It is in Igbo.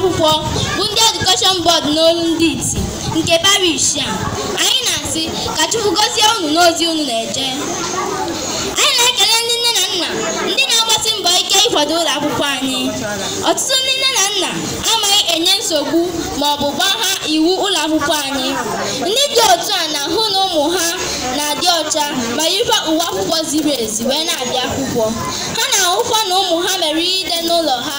akwụkwọ bụ ndị edukeshọn bọọdụ n'olu ndị iti nke parish a anyị na-asị ka Chukwu gọzie unu n'ozi unu na-eje anyị na-ekele ndị nne na nna ndị na-agbasi mbọ ike ịkwado ụlọ akwụkwọ anyị ọtụtụ ndị nne na nna amaghị enye nsogbu ma ọ bụ gbagha ha iwu ụlọ akwụkwọ anyị ndị dị otu a na-ahụ na ụmụ ha na-adị ọcha ma yirikwa uwe akwụkwọ ziri ezi wee na-abịa akwụkwọ ha na-ahụkwa na ụmụ ha mere ihe ide n'ụlọ ha